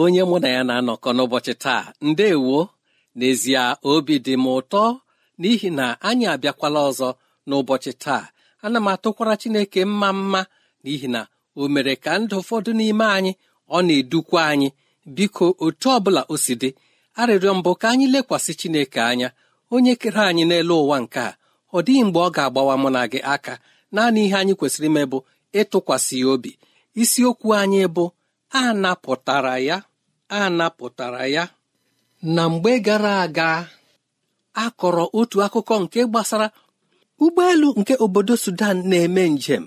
onye mụ na ya na-anọkọ n'ụbọchị taa ndewo n'ezie obi dị m ụtọ n'ihi na anyị abịakwala ọzọ n'ụbọchị taa ana m atụkwara chineke mma mma n'ihi na o mere ka ndụ ụfọdụ n'ime anyị ọ na-edukwa anyị biko otu ọbụla o si dị arịrịọ mbụ ka anyị lekwasị chineke anya onye kere anyị n'elu ụwa nke a ọ dịghị mgbe ọ ga-agbawa mụ na gị aka naanị ihe anyị kwesịrị ime bụ ịtụkwasị ya obi isiokwu anyị bụ a napụtara ya a napụtara ya na mgbe gara aga akọrọ otu akụkọ nke gbasara ụgbọelu nke obodo sudan na-eme njem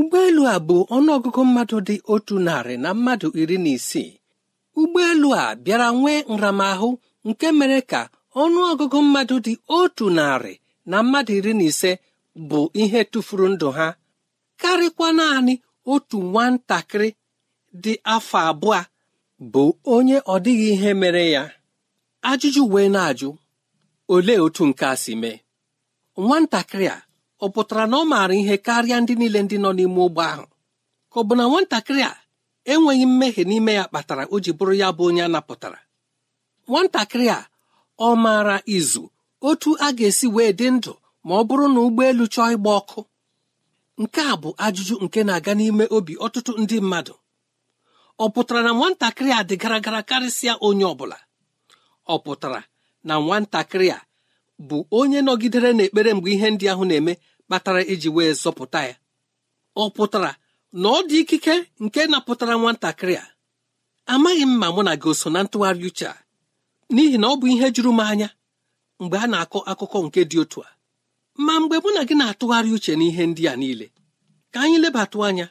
ụgbọelu a bụ ọnụọgụgụ mmadụ dị otu narị na mmadụ iri na isii ụgbọelu a bịara nwee nramahụ nke mere ka ọnụọgụgụ mmadụ dị otu narị na mmadụ iri na ise bụ ihe tụfuru ndụ ha karịkwa naanị otu nwatakịrị dị afọ abụọ bụ onye ọ dịghị ihe mere ya ajụjụ wee na-ajụ olee otu nke a si mee nwatakịrị a ọ pụtara na ọ maara ihe karịa ndị niile ndị nọ n'ime ụgbọ ahụ ka ọ bụ na nwatakịrị a enweghị mmehie n'ime ya kpatara o ji bụrụ ya bụ onye a napụtara nwatakịrị a ọ maara izu otu a ga-esi wee dị ndụ ma ọ bụrụ na ụgbọelu chọọ ịgba ọkụ nke a bụ ajụjụ nke na-aga n'ime obi ọtụtụ ndị mmadụ ọ pụtara na nwatakịrị a dị gara gara karịsịa onye ọ bụla ọ pụtara na nwatakịrị a bụ onye nọgidere n'ekpere mgbe ihe ndị ahụ na-eme kpatara iji wee zọpụta ya ọ pụtara na ọ dị ikike nke napụtara nwatakịrị a amaghị m ma mụ na gị so na ntụgharị uche a n'ihi na ọ bụ ihe juru m anya mgbe a na-akọ akụkọ nke dị otu a ma mgbe mụ na gị na-atụgharị uche n'ihe ndị a niile ka anyị lebatụ anya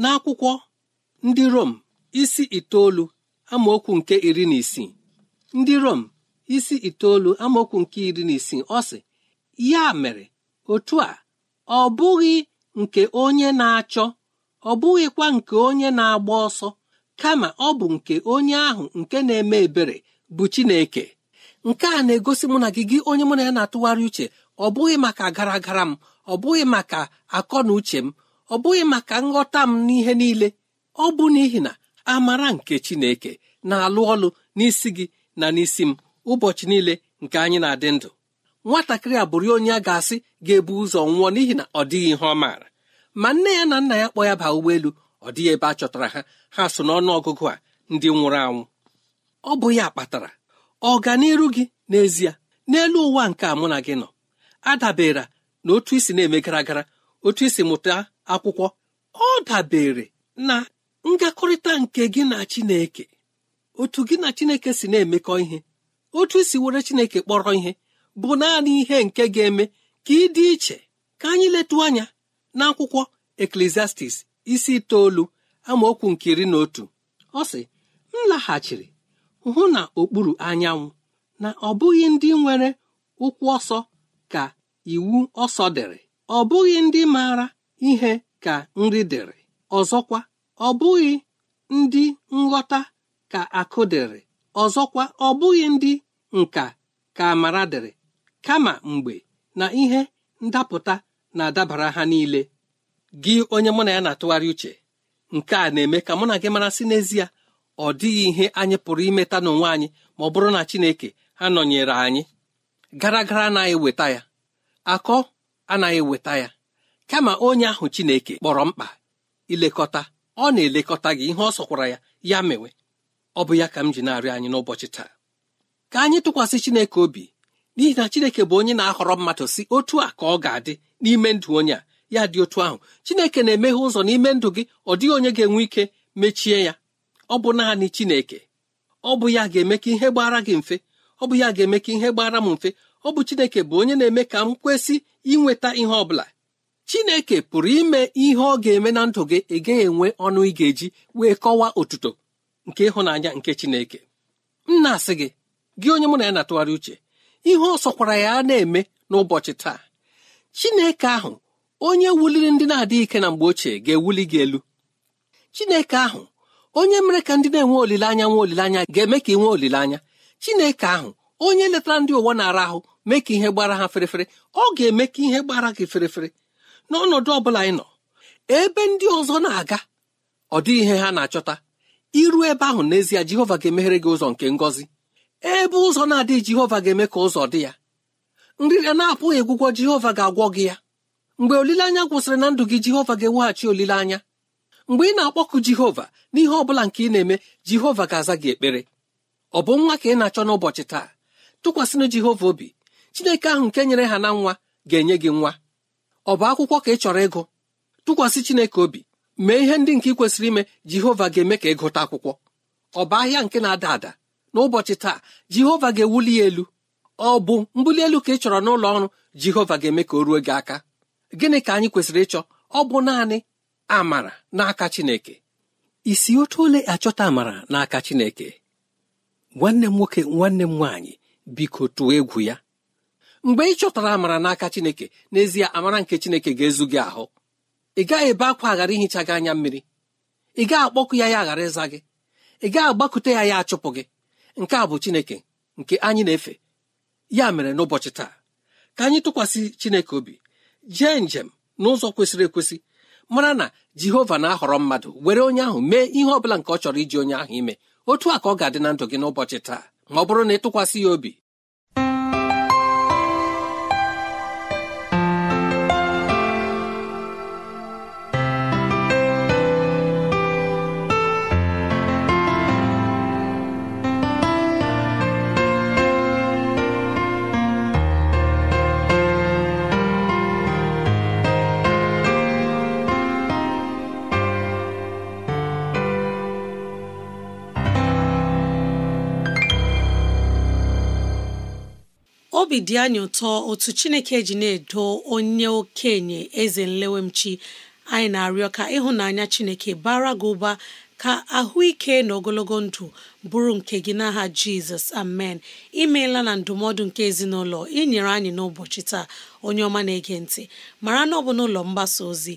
n'akwụkwọ ndị Rom isi itoolu amaokwu nke iri na isii ndị Rom isi itoolu amaokwu nke iri na isii ọ sị ya mere otu a ọ bụghị nke onye na-achọ ọ bụghịkwa nke onye na-agba ọsọ kama ọ bụ nke onye ahụ nke na-eme ebere bụ Chineke nke a na-egosi mụ na gị gị onye mụ na ya na-atụgharị uche ọ bụghị maka gara gara m ọ bụghị maka akọ na uche m ọ bụghị maka nghọta m n'ihe niile ọ bụ n'ihi na amara nke chineke na-alụ ọlụ n'isi gị na n'isi m ụbọchị niile nke anyị na-adị ndụ nwatakịrị a bụrụ onye a ga-asị ga-ebu ụzọ nwụọ n'ihi na ọ dịghị ihe ọ maara ma nne ya na nna ya kpọ ya baa ụgbọelu ọ dịghị ebe a chọtara ha ha so n'ọnụ ọgụgụ a ndị nwụrụ anwụ ọ bụ ya kpatara ọganiru gị n'ezie n'elu ụwa nke a mụ na gị nọ adabere na otu isi na-eme gara gara otu isi mụta akwụkwọ ọ dabere na ngakọrịta nke gị na Chineke otu gị na Chineke si na-emekọ ihe otu isi were Chineke kpọrọ ihe bụ naanị ihe nke ga-eme ka ị dị iche ka anyị letu anya n'akwụkwọ Eklesiastis isi itoolu amaokwu nke iri na otu ọ sị m laghachiri hụ na okpuru anyanwụ na ọ bụghị ndị nwere ụkwụ ọsọ ka iwu ọsọ dịrị ọ bụghị ndị maara ihe ka nri dịrị ọzọkwa ọ bụghị ndị nghọta ka akụ dịrị ọzọkwa ọ bụghị ndị nka ka amara dịrị kama mgbe na ihe ndapụta na-adabara ha niile gị onye mụ na ya na-atụgharị uche nke a na-eme ka mụ na gị marasị n'ezie ọ dịghị ihe anyị pụrụ imeta n'onwe anyị ma ọ bụrụ na Chineke nọnyere anyị gara gara anaghị weta ya akọ anaghị weta ya kama onye ahụ Chineke kpọrọ mkpa ilekọta ọ na-elekọta gị ihe ọ sọkwara ya ya mewe ọ bụ ya ka m ji na anyị n'ụbọchị taa ka anyị tụkwasị Chineke obi n'ihi na Chineke bụ onye na-ahọrọ mmadụ si otu a ka ọ ga-adị n'ime ndụ onye a ya dị otu ahụ Chineke na-emeghe ụzọ n'ime ndụ gị ọ dịghị onye ga-enwe ike mechie ya ọ bụ naanị Chineke ọ bụ ya ga-eme ka ihe gbara gị mfe ọ bụ ya ga-eme ka ihe gbara m mfe ọ bụ Chineke bụ onye na-eme ka m kwesị inweta ihe ọ bụla chineke pụrụ ime ihe ọ ga-eme na ndụ gị ịga enwe ọnụ ị ga-eji wee kọwaa otuto nke ịhụnanya nke chineke m na-asị gị gị onye mụ na ya na-atụgharị uche ihe ọ sọkwara ya na-eme n'ụbọchị taa chineke ahụ onye wuliri ndị na-adịghị ike na mgbe ochie ga-ewuli gị elu chineke ahụ onye mere ka ndị na-enwe olileanya nwe olileanya ga-eme ka ị nwee olileanya chineke ahụ onye letara ndị ụwa na-ara ahụ mee ka ihe gbara ha ferefere ọ ga-eme ka ihe gbara gị ferefere n'ọnọdụ ọ bụla nọ ebe ndị ọzọ na-aga ọ dịghị ihe ha na-achọta iru ebe ahụ n'ezie jehova ga-emeghere gị ụzọ nke ngọzi ebe ụzọ na-adịghị jehova ga-eme ka ụzọ dị ya nrịrịa na-apụghị egwụgwọ jehova ga-agwọ gị ya mgbe olileanya gwụsịrị na ndụ gị jehova ga-eweghachi olileanya mgbe ị na-akpọkụ jehova n'ihe ọ bụla nke ị na-eme jehova ga-aza gị ekpere ọ bụ nwa ka ị na-achọ n'ụbọchị taa tụkwasịnụ jehova obi chineke ahụ nke nyere ha na nwa ga-enye gị nwa ọ bụ akwụkwọ ka ị chọrọ ịgụ tụkwasị Chineke obi mee ihe ndị nke ị kwesịrị ime Jehova ga-eme ka gụta akwụkwọ ọ bụ ahịa nke na-ada ada n'ụbọchị taa Jehova ga-ewuli ya elu ọ bụ mbuli elu ka ị chọrọ n'ụlọ ọrụ Jehova ga-eme ka o ruo gị aka gịnị ka anyị kwesịrị ịchọ ọ bụ naanị amara n'aka Chineke isi otu ole achọta amara n'aka Chineke nwanne m nwoke nwanne m nwaanyị biko tụọ egwu ya mgbe ị chọtara amara n'aka chineke n'ezie amara nke chineke ga-ezu gị ahụ ị gaghị ebe akwa aghara ihicha gị anya mmiri ị gaghị akpọkụ ya ya aghara ịza gị ị gaghị agbakute ya ya achụpụ gị nke a bụ chineke nke anyị na-efe ya mere n'ụbọchị taa ka anyị tụkwasị chineke obi jee njem n'ụzọ kwesịrị ekwesị mara na jehova na-ahọrọ mmadụ were onye ahụ mee ihe ọ bụla nke ọ chọrọ iji onye ahụ ime otu a ka ọ ga-adị na ndụ gị n'ụbọchị taa ma ọ bụrụ na ị tụkwasị ya obi obi dị anyị ụtọ otu chineke ji na-edo onye okenye eze nlewemchi anyị na-arịọ ka ịhụnanya chineke bara gị ụba ka ahụike na ogologo ndụ bụrụ nke gị n'aha jizọs amen imeela na ndụmọdụ nke ezinụlọ inyere anyị n'ụbọchị taa onye ọma na-ege ntị mara na ọ bụ n'ụlọ mgbasa ozi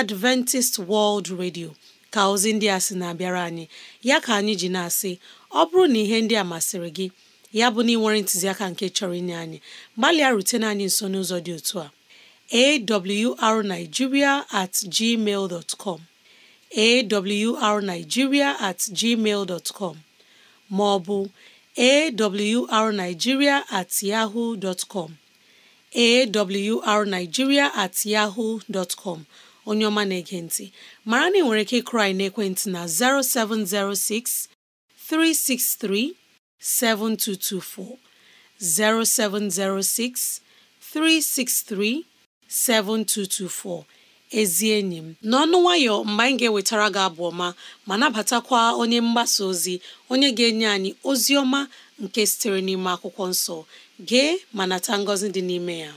adventist world radio ka ozi ndị a sị na-abịara anyị ya ka anyị ji na-asị ọ bụrụ na ihe ndị a masịrị gị ya bụ na ịnwere ntụziaka nke chọrọ inye anyị gbalịa na anyị nso n'ụzọ dị otu a awrnigeria at com awrnigeria at gmail com ma ọ bụ awrnigeria at yahoo dot com awrnigeria at yahoo com onye ọma na-ege ntị mara na ị nwere ike ịkụrụ na ekwentị na 0706 363 7224 0706 363 7224 ezi enyi m n'ọnụ nwayọ mgbe anyị ga-ewetara gị abụ ọma ma nabatakwa onye mgbasa ozi onye ga-enye anyị ozi ọma nke sitere n'ime akwụkwọ nsọ gee ma nata ngọzi dị n'ime ya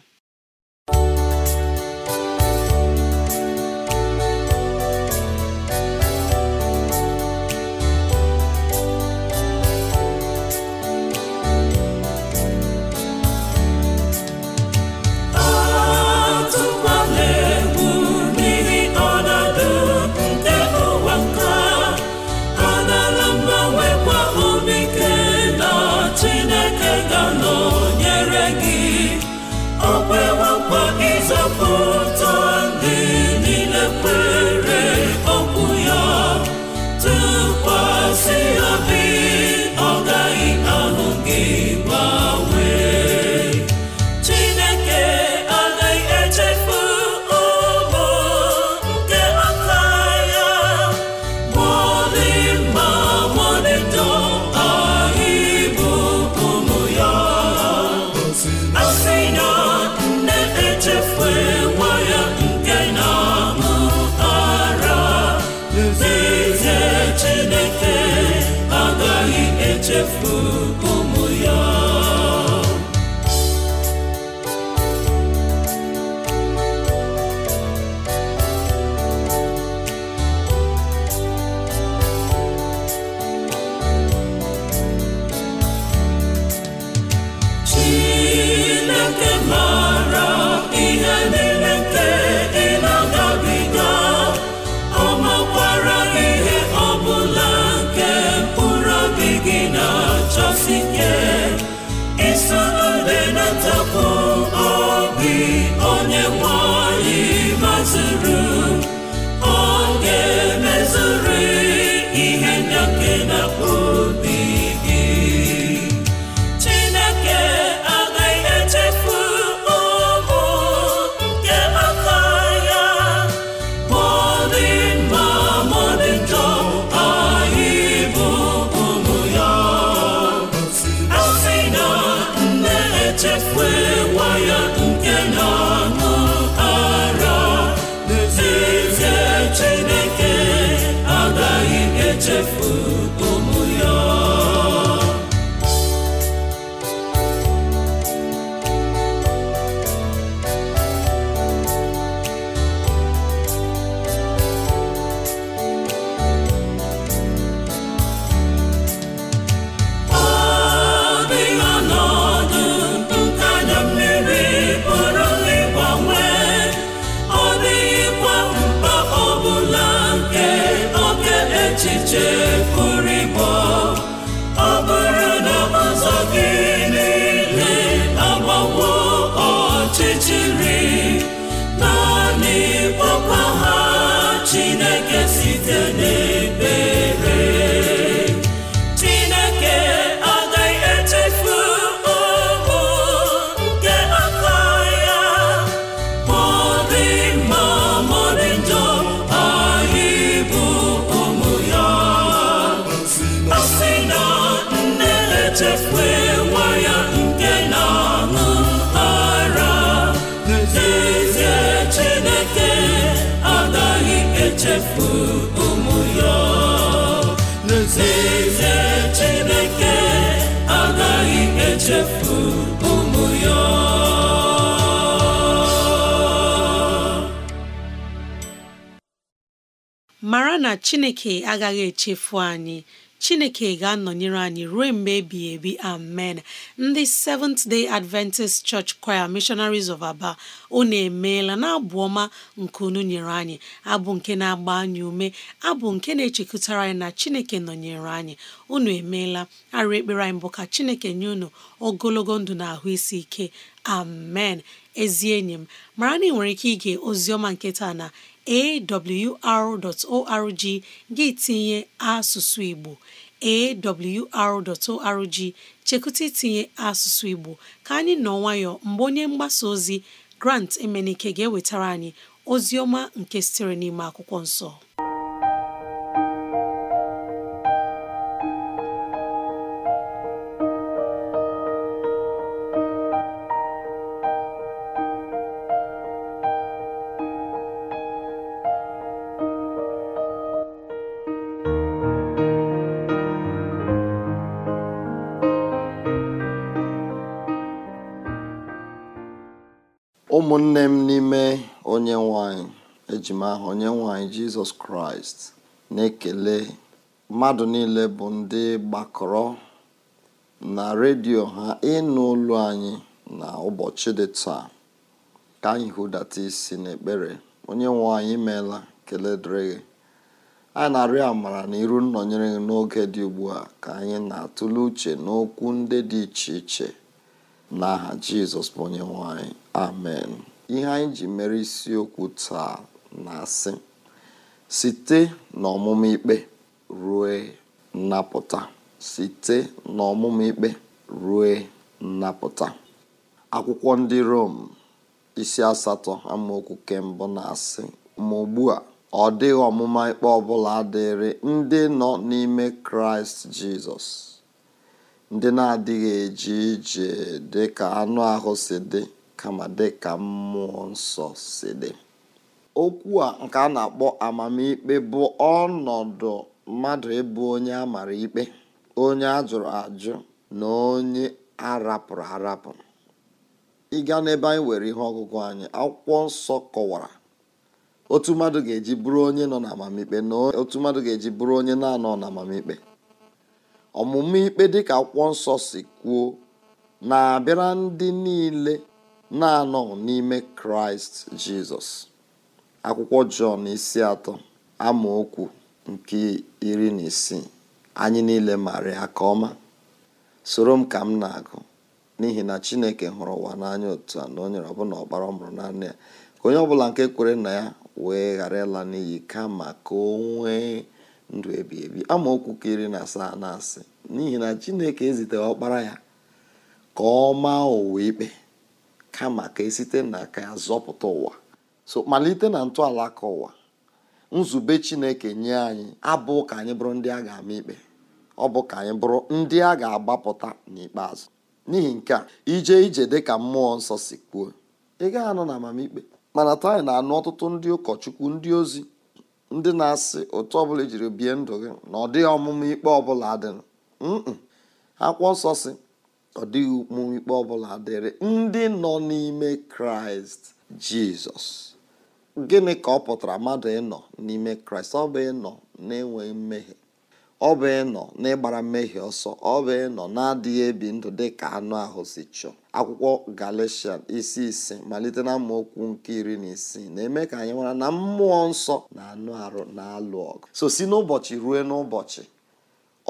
mara na Chineke agaghị echefu anyị chineke ga-anọnyere anyị ruo mgbe ebighị ebi amen ndị Seventh Day Adventist Church Choir Missionaries of Aba unu emeela na abụ ọma nke unu nyere anyị abụ nke na-agba anyị ume abụ nke na-echekụtara anyị na chineke nọnyere anyị unu emeela arụ ekpere anyị bụ ka chineke nye unu ogologo ndụ na ahụ isi ike amen ezi enyi m mara na ị nwere ike ige oziọma nke taa na awr.org gị tinye asụsụ Igbo awr.org chekụta itinye asụsụ Igbo ka anyị nọ nwayọọ mgbe onye mgbasa ozi Grant Emenike ga-ewetara anyị ozi ọma nke sitere n'ime akwụkwọ nsọ ụmụnne m n'ime onye nwanyị ejima m onye nwanyị jizọs kraịst na-ekele mmadụ niile bụ ndị gbakọrọ na redio ha ịnụ ụlọ anyị na ụbọchị dị taa ka anyị hụdata isi n'ekpere onye nwe anyị imeela kele dịrị gị anyị na-arịọ amara na iru nnọnyere gị n'oge dị ugbu a ka anyị na-atụle uche n'okwu ndị dị iche iche n'aha jizọs bụ onye nwanyị anyị amen ihe anyị ji mere isiokwu taa na-asị site n'ọmụmụ ikpe rue nnapụta site n'ọmụmụ ikpe rue nnapụta akwụkwọ ndị rom isi asatọ amaokwu kembụ na-asị ma ugbu a ọ dịghị ọmụma ikpe ọ bụla dịrị ndị nọ n'ime kraịst jizọs ndị na-adịghị eji ije dị ka anụ ahụ si dị kama dịka mmụọ nsọ si dị okwu a nke a na-akpọ amamikpe bụ ọnọdụ mmadụ ịbụ onye a mara ikpe onye a jụrụ ajụ na onye arapụrụ arapụ ịga n'ebe anyị were ihe ọgụgụ anyị akwụkwọ nsọ kọwara otu mmadụ ga-eji bụrụ onye nọ na amamikpe na otu mmadụ ga-eji bụrụ onye na-anọ na amamikpe ọmụmụ ikpe dịka akwụkwọ nsọ si kwuo na-abịara ndị niile na-anọ n'ime kraịst jizọs akwụkwọ jọn isi atọ amaokwu nke iri na isii anyị niile maara ya ka ọma soro m ka m na-agụ n'ihi na chineke hụrụ ụwa n'anya otu a na onye nyere ọbụla ọkpara mụrụ naanị ya ka onye ọbụla nke kwere na ya wee ghara ịla n'iyi kama ka o nwee ndụ ebi ebi amaokwu ka iri na asaa na asị n'ihi na chineke eziteghị ọkpara ya ka ọ maa ụwa ikpe kama ka esite n'aka ya zọpụta ụwa so malite na ntọala aka ụwa nzube chineke nye anyị abụ ka anyị bụrụ ndị a ga-ama ikpe ọ bụ ka anyị bụrụ ndị a ga-agbapụta n'ikpeazụ n'ihi nke a ije ije dịka mmụọ nsọ si kwuo ị gaghị anọ na amamikpe mana taa anyị na-anụ ọtụtụ ndị ụkọchukwu ndị ozi ndị na-asị otu ọbụla ejiri bie ndụ gị na ọ dịghị ọmụmụ ikpe ọbụla adịnụ akwụkwọ nsọ si ọ dịghị ọ ọbụla dịrị ndị nọ n'ime kraịst jizọs gịnị ka ọ pụtara mmadụ ịnọ n'ime kraịst ọ bụ ịnọ na-enweghị mmehie ọ bụ ịnọ n'ịgbara mmehie ọsọ ọ bụ ịnọ na-adịghị ebi ndụ dị ka anụ ahụ si chọọ akwụkwọ galatian isi ise malite na okwu nke iri na isii na-eme ka anyị nwara na mmụọ nsọ na anụ arụ na-alụ ọgụ so si n'ụbọchị ruo n'ụbọchị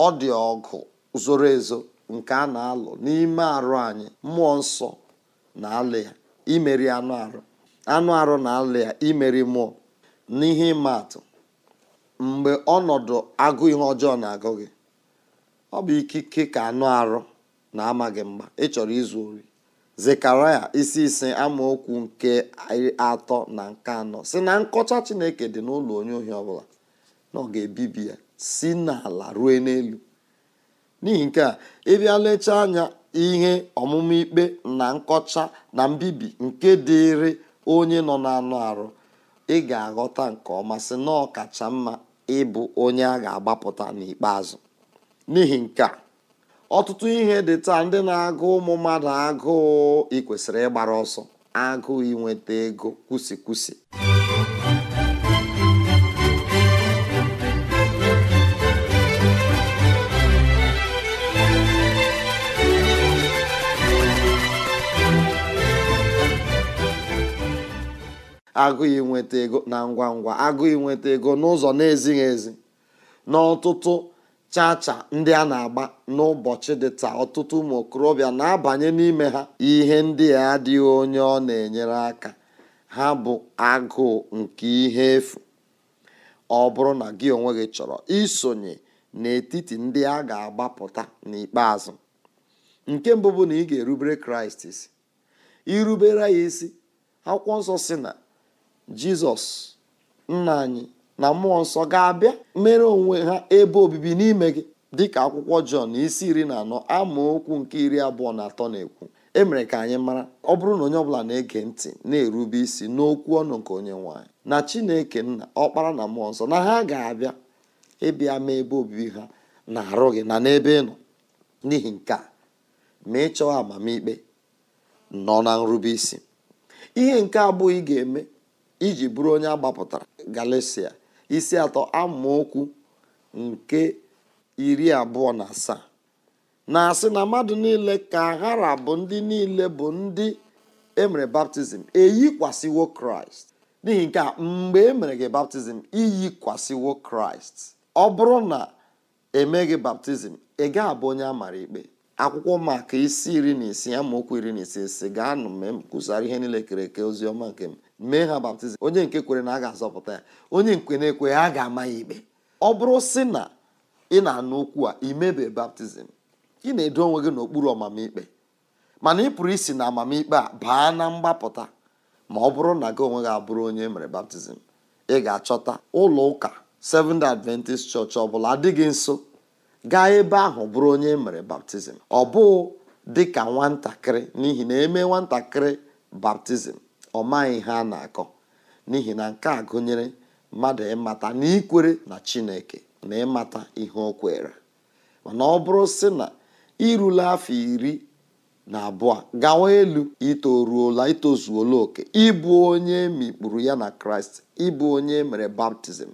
ọ dị ọgụ zoro ezo nke a na-alụ n'ime arụ anyị mmụọ nsọ na-alụ ya imeri anụ arụ anụ arụ na alị ya imeri mmụọ n'ihe ịma atụ mgbe ọnọdụ agụ ihe ọjọọ na-agụ gị ọ bụ ikike ka anụ arụ na amaghị gị mgba ịchọrọ izu ori zekaraya isi ise amaokwu nke atọ na nke anọ si na nkọcha chineke dị n'ụlọ onye ohi ọbụla na ọ ga-ebibi ya si n'ala rue n'elu n'ihi nke a ịbịa lechaa anya ihe ọmụmụ ikpe na nkọcha na mbibi nke dịịrị onye nọ n'anụ arụ ị ga-aghọta nke ọma sị na ọ kacha mma ịbụ onye a ga-agbapụta n'ikpeazụ n'ihi nke a ọtụtụ ihe dị taa ndị na-agụ ụmụ mmadụ agụụ ị kwesịrị ịgbara ọsọ agụụ inweta ego kwusikwusi agụghị nweta ego na ngwa ngwa agụghị nweta ego n'ụzọ na-ezighị ezi n'ọtụtụ chacha ndị a na-agba n'ụbọchị dị taa ọtụtụ ụmụ okorobịa na-abanye n'ime ha ihe ndị a adịghị onye ọ na-enyere aka ha bụ agụụ nke ihe efu ọ bụrụ na gị onwe gị chọrọ isonye n'etiti ndị a ga-agbapụta n'ikpeazụ nke mbụ bụ na ị ga-erubere kraịst isi irubere ya isi akwụkwọ nsọ si na jizọs nna anyị na mmụọ nsọ ga-abịa mere onwe ha ebe obibi n'ime gị dịka akwụkwọ jọn isi iri na anọ amaokwu nke iri abụọ na atọ na-ekwu emere ka anyị mara ọ bụrụ na onye ọbụla na-ege ntị na-erube isi n'okwu ọnụ nke onye nwanyị na chineke nna ọkpara na mmụọ nsọ na ha ga-abịa ịbịa ma ebe obibi ha na-arụ gị na n'ebe ị nọ n'ihi nke a ma ị chọọ amamikpe nọ na nrube isi ihe nke abụọ ị ga-eme iji bụrụ onye agbapụtara Galatia isi atọ amaokwu nke iri abụọ na asaa na-asị na mmadụ niile ka aghara bụ ndị niile bụ ndị emere baptizim eyikwasịwo kraịst n'ihi nke a mgbe emere gị baptizim iyikwasịwo kraịst ọ bụrụ na emeghị baptizim ị gaa abụ onye a mara ikpe akwụkwọ maka isi iri na isii amaokwu iri na isii si gaanụ m ihe niile kere eke ozi ọma nke m mee ha baptizim onye nke kwere na a ga-azọpụta ya onye nke na-ekwe ha ga-ama ya ikpe ọ bụrụ si na ị na-anụ okwu a imebe baptizim ị na-edo onwe gị n'okpuru ọmamikpe mana ị pụrụ isi na amamikpe a baa na mgbapụta ma ọ bụrụ na gị onwe gị abụrụ onye e mere baptizim ị ga-achọta ụlọ ụka Seventh Adventist Church ọ bụla adịghị nso gaa ebe ahụ bụrụ onye e mere baptizim ọ bụụ dị ka nwatakịrị n'ihi na eme nwatakịrị baptizim ọ maghị ihe a na-akọ n'ihi na nke a gụnyere mmadụ ịmata na ikwere na chineke na ịmata ihe o kwere mana ọ bụrụ sị na irula afọ iri na abụọ gawa elu itoruola itozuola oke ịbụ onye mikpuru ya na kraịst ịbụ onye mere baptizim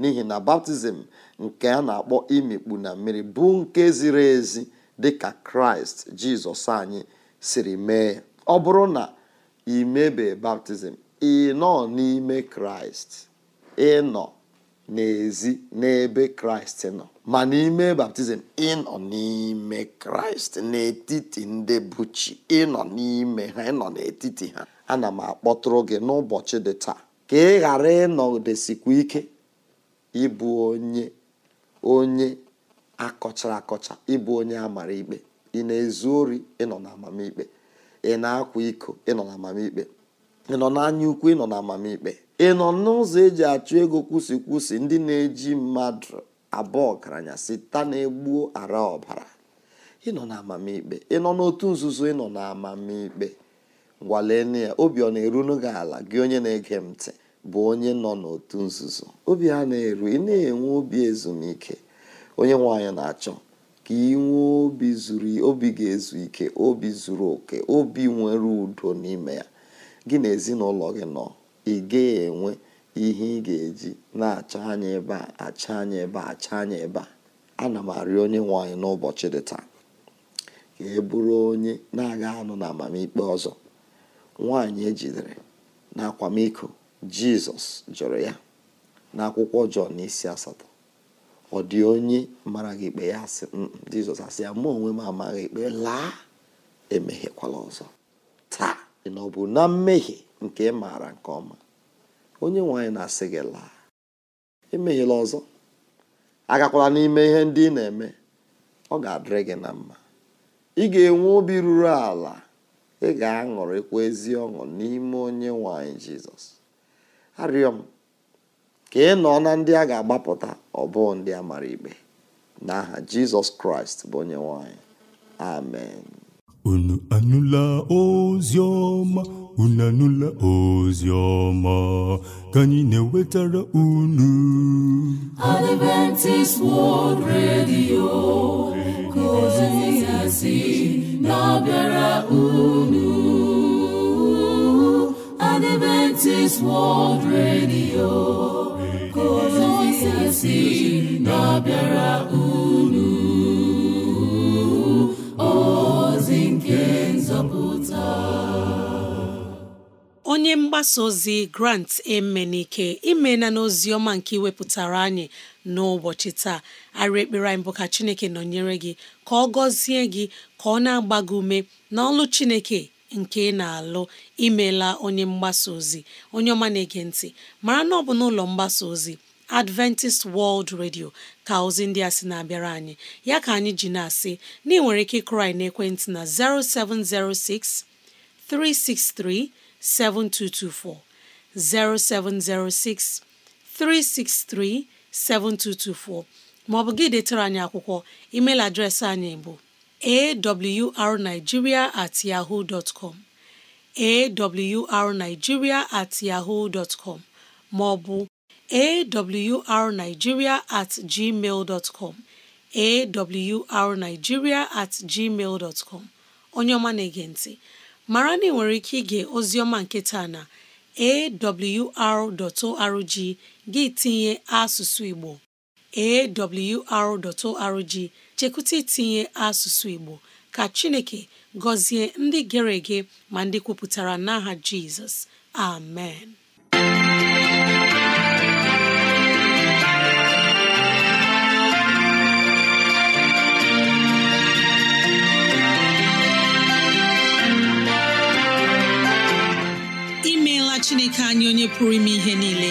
n'ihi na baptizim nke a na-akpọ imikpu na mmiri bụ nke ziri ezi dị ka kraịst jizọs anyị siri mee ọ bụrụ na imebe baptizim ị nọ n'ime kraịst ịnọ n'ezi n'ebe kraịst nọ ma n'ime baptizim ịnọ n'ime kraịst n'etiti ndị buchi ịnọ n'ime ha ịnọ n'etiti ha ana m akpọtụrụ gị n'ụbọchị dị taa ka ị ghara ịnọdesikwa ike ịbụ onye onye akọchara akọcha ịbụ onye amara ikpe ị na-ezu ori ịnọ na amamikpe ị na-akwa iko ịnọ na amamikpe ị nọ n'anya ukwu ịnọ na amamikpe ị nọ n'ụzọ eji achụ ego kwụsị kwụsị ndị na-eji mmadụ abụọ ọgaranya sita na-egbuo ara ọbara ịnọ na amamikpe ị nọ n'otu nzuzo ịnọ na amamikpe ngwalenu ya obi ọ na-eru n'oge ala gị onye na-ege m ntị bụ onye nọ n'otu nzuzo obi ha na-eru ị na-enwe obi ezumike onye nwe anyị na-achọ ka ị obi zuru obi ga-ezu ike obi zuru oke obi nwere udo n'ime ya gị na ezinụlọ gị nọ ị gaghị enwe ihe ị ga-eji na acha anya ebe a acha anya ebe a achọ anya ebe a ana m arịọ onye nwanyị n'ụbọchị dị taa ka e bụrụ onye na-aga anụ na amamikpe ọzọ nwanyị ejidere na akwamiko jizọs jụrụ ya n'akwụkwọ jọn isi asatọ ọ dị onye mara gị ikpe ya sị mm, mm, jizọs asị ya mụ onwe m amaghị ikpe laa emehiekwala ọzọ taa na ọ bụ na mmehie nke ị maara nke ọma onye nwanyị na-asị gị laa emehiela ọzọ agakwala n'ime ihe ndị ị na-eme ọ ga-adịrị gị na mma ị ga-enwe obi ruru ala ị ga-aṅụrịkwa ezi ọṅụ n'ime onye nwanyị jizọs arịọ m ka ị nọ na ndị a ga-agbapụta ọ ndị a mara ikpe n'aha jizọs kraịst bụ onye nwanyị amen unu anụla ozi ọma unu anụla ozi ọma ka anyị na-ewetara unu Adventist World Radio ka si na-abịara unu Adventist World Radio si na-abịara unu ozi nke nzọpụta onye mgbasa ozi grant emenike imena n'ozi ọma nke iwepụtara anyị n'ụbọchị taa arị ekpere anyị ka chineke nọnyere gị ka ọ gọzie gị ka ọ na-agba gị ume n'ọlụ chineke nke ị na-alụ imela onye mgbasa ozi onye ọma na-ege ntị mara na ọ bụ n'ụlọ mgbasa ozi Adventist World Radio ka ozi ndị a sị na-abịara anyị ya ka anyị ji na-asị na ị nwere ike ịkụrị n'ekwentị na 0706 363 7224 0706 363 7224 ma ọ bụ gị detara anyị akwụkwọ email adreesị anyị bụ awrnigeria at com at yahoo maọbụ awrnigeria at com at onye ọma na-ege mara na ị nwere ike ige ozioma nke taa na awr.org gị tinye asụsụ Igbo awr.org chekwụta itinye asụsụ Igbo ka Chineke gọzie ndị gere ege ma ndị kwupụtara n'aha Jizọs amen imeela Chineke anyị onye pụrụ ime ihe niile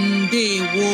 ndewo